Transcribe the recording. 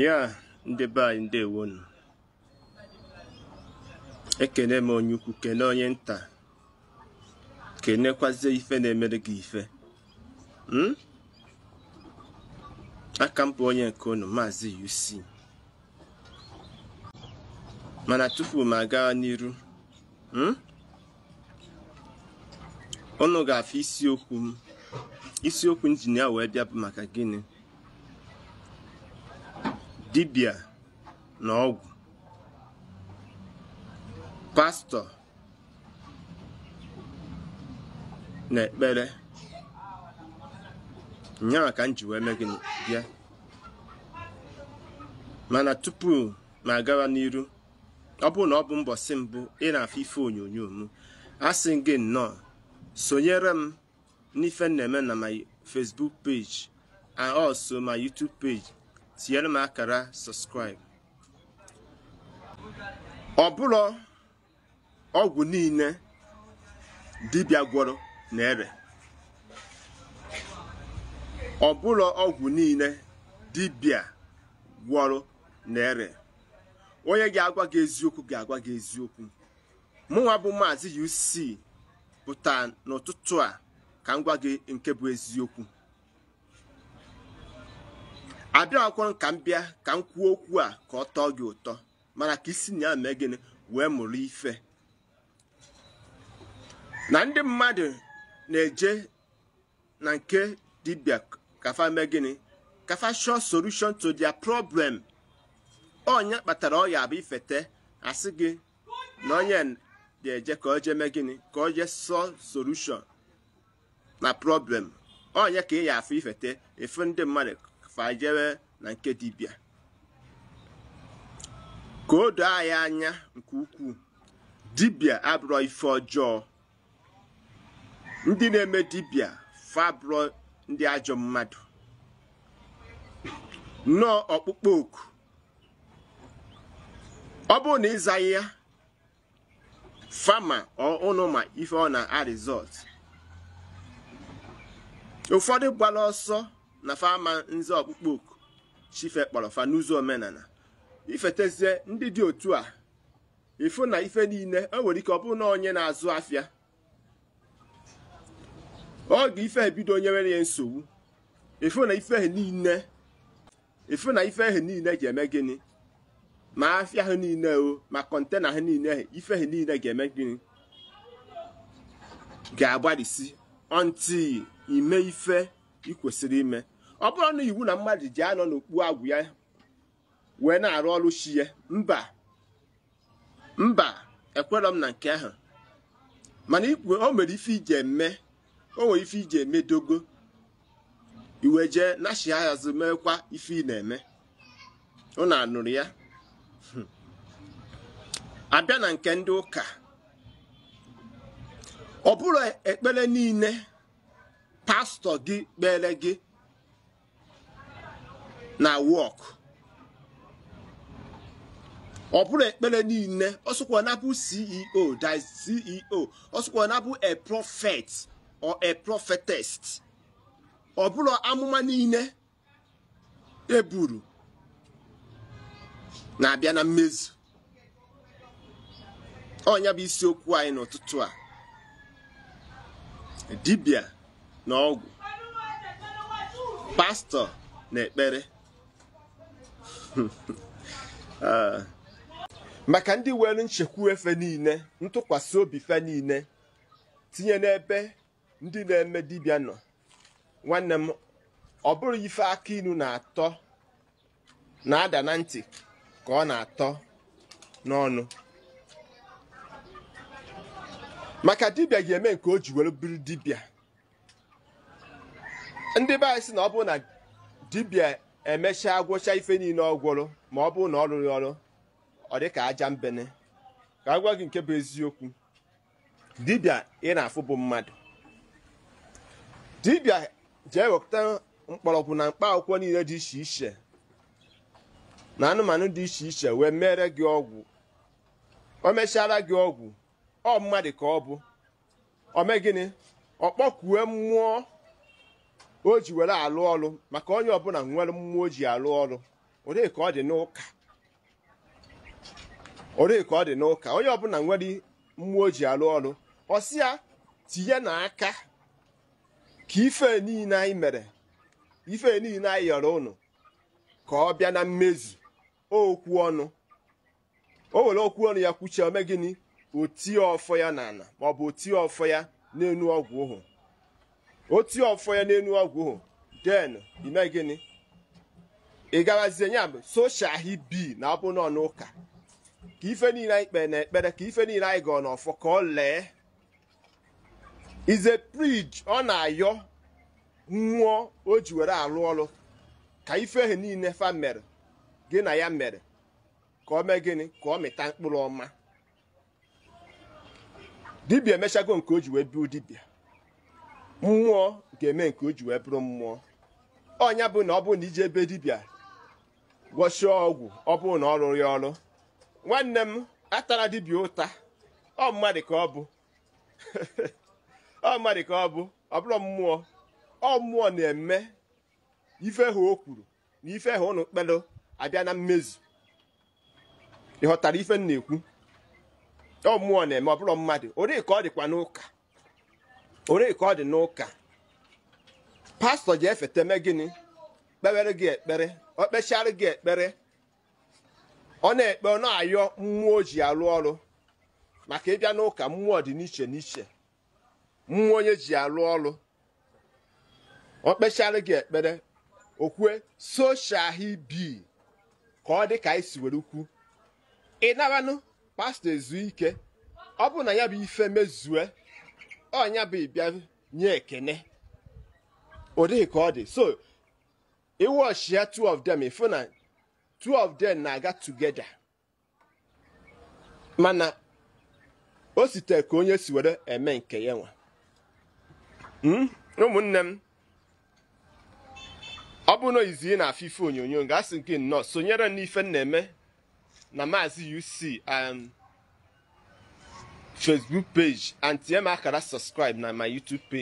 ya ndị be anyị ndewonu ekene m onye ukwu kene onye nta kenekwazie ife na-emere gị ife hmm? aka m bụ onye nke unu maazị UC mana tupu m aga n'iru hmm? unu ga-afụ isiokwu m isiokwu injinia wee bịa bụ maka gịnị dibia na ọgwụ pastọ na ekpere nyaa ka m ji wee mee gịnị bịa mana tupu ma agawa n'iru ọ bụrụ na ọ bụ mbọsị mbụ ị na-afụ ife onyonyo m a sị gị nnọọ sonyere m n'ife na-eme na my Facebook page and also my YouTube page tinyere m akara sọskraịbụ ọ bụrụ ọgwụ niile dibịa gwọrọ na-ere ọ bụrụ ọgwụ niile dibịa gwọrọ na onye ga-agwa gị eziokwu ga-agwa gị eziokwu mụnwa bụ maazị UC pụta n'ụtụtụ a ka m gwa gị nke bụ eziokwu abịakwọrọ ka m bịa ka m kwuo okwu a ka ọ tọọ gị ụtọ mana ka isi na ya mee gịnị wee mụrụ ife na ndị mmadụ na-eje na nke dibịa kafa mee gịnị kafa shọ solution to dia problem onye kpatara ọya abụ ifete asị gị na onye ga-eje ka oje mee gịnị ka oje sọ solution na problem onye ka ị ya afụ ifete ndị mmadụ fajere na nke dibia. ka o doo anyị anya nke ukwuu Dibia abụrọ ife ọjọọ ndị na-eme dibịa fabụrọ ndị ajọ mmadụ nnọọ ọkpụkpọ oku ọ bụrụ na ịzaghị ya fama ụnụ ma ife ọ na-arizọt ụfọdụ gbara ọsọ na fama nze ọkpụkpọ oku chife kpọrọ fa n'ụzọ omenala ifetezie ndị dị otu a ịfụ na ife niile o e nwere ike ọ bụrụ na onye na-azụ afịa oge ife ebido onye nwere ya nsogbu ịfụ na ife e niile na ife ehe niile ga eme gịnị ma afịa ha niile o ma kọntena ha niile ife ha niile ga-eme gịnị ga-agbarisi ọntị ime ife ikwesịrị ime ọ bụrụ na iwu na mmadụ ji anọ n'okpu agwụ ya wee na-arụ ọrụ chi ya mba mba ekwerọ m na nke ahụ mana ikwe o mere ife ije eme o nwere ife iji eme dogo iwe jee nashi azụ meekwa ife ị na-eme ụnụ anụrụ ya abịa na nke ndị ụka ọ bụrụ ekpere niile pastọ gị kpere gị na work. ọ bụrụ ekpere niile ọsụkwa na bụ ceo that ceo ọsụkwa na bụ a prophet or a prophetess ọ bụrụ amụma niile eburu na-abịa na mmezu ọnya bụ isiokwu anyị n'ụtụtụ a dibia na ọgwụ pastọ na ekpere Ah. maka ndị welu nchekwu efe niile ntụkwasị obi fe niile tinye n'ebe ndị na-eme dibịa nọ nwanne m ọ bụrụ ife aka inu na-atọ na-ada na ntị ka ọ na-atọ n'ọnụ maka dibia ga-eme nke o ji were biri dibịa ndị be sị na ọ bụrụ na dibịa emechaa gwụcha ife niile ọ ma ọ bụrụ na ọ rụrụ ọrụ ọ dị ka aja mbene ka a gwa gị nke bụ eziokwu dibịa ị na-afụ bụ mmadụ dibịa jee wepụta mgbọrọgwụ na mkpa akwụkwọ niile dị iche iche na anụmanụ dị iche iche wee mere gị ọgwụ o mechara gị ọgwụ ọ mmadụ ka ọ bụ mee gịnị ọ mmụọ o ji were alụ ọrụ maka onye ọbụla nwere mmụọ oji ji alụ ọlụ ka ọ dị n'ụka onye ọbụla nwere mmụọ oji ji ọrụ ọsịa tinye n'aka ka ife niile anyị mere ife niile anyị yọrọ ụnụ ka ọ bịa na mmezu okwu ọnụ o were okwu ọnụ ya kwuchie ome gịnị otie ọfọ ya n'ala maọbụ otie ọfọ ya n'elu ọgwụ ụhụ otu ọfọ ya n'elu ọgwụ hụ den ime gịnị ị garazie ya bụ soshal hibi na abụ nọ n'ụka ka ife niile anyị kpere na ekpere ka ife niile anyị gọọ n'ọfọ ka ọ lee ize prij ọ na-ayọ nwụọ o ji were arụ ọrụ ka ife ahụ niile fa mere gị na ya mere ka ọ mee gịnị ka ọ mịta mkpụrụ ọma dibia emechago nke o ji wee biu dibia mmụọ ga-eme nke o ji wee bụrụ mmụọ ọnya bụ na ọ bụrụ na ije ebe dibịa gwọchie ọgwụ ọ bụrụ na ọ rụrụ ya ọrụ nwanne m atara dibịa ụta ọ mmadụ ka ọ bụ ọ mmadụ ka ọ bụ ọ bụrụ mmụọ ọ mmụọ na-eme ife ha o kwuru na ife ha ụnụ kpelụ abịa na mmezu ịghọtara ife m na-ekwu ọ mmụọ na-eme ọ bụrụ mmadụ ori ka ọ dịkwa n'ụka onu ka ọ dị n'ụka pastọ ji efete megini gịnị kpewere gị ekpere ọ kpechara gị ekpere ọ na-ekpe ọ na-ayọ mmụọ ji alụ ọrụ maka ịbịa n'ụka mmụọ dị n'iche n'iche mmụọ onye ji alụ ọrụ ọ kpechara gị ekpere okwue soshal hibi ka ọ dị ka anyị si were ukwu ị naranụ pastọ ezu ike ọ bụrụ na ya bụ ife mezue ọnya bụ ịbịa nye ekene ọ dịghị ka ọ dị so ọchịa two of them ifu na two of them na-aga together mana o site ka onye si were eme nke ya nwa hmm? ụmụnne m ọ bụ na izi na afọ ife onyonyo ga-asị nke nnọọ sonyere n'ife m na-eme na maazị UC um, facebook page and TMR can subscribe now my youtube page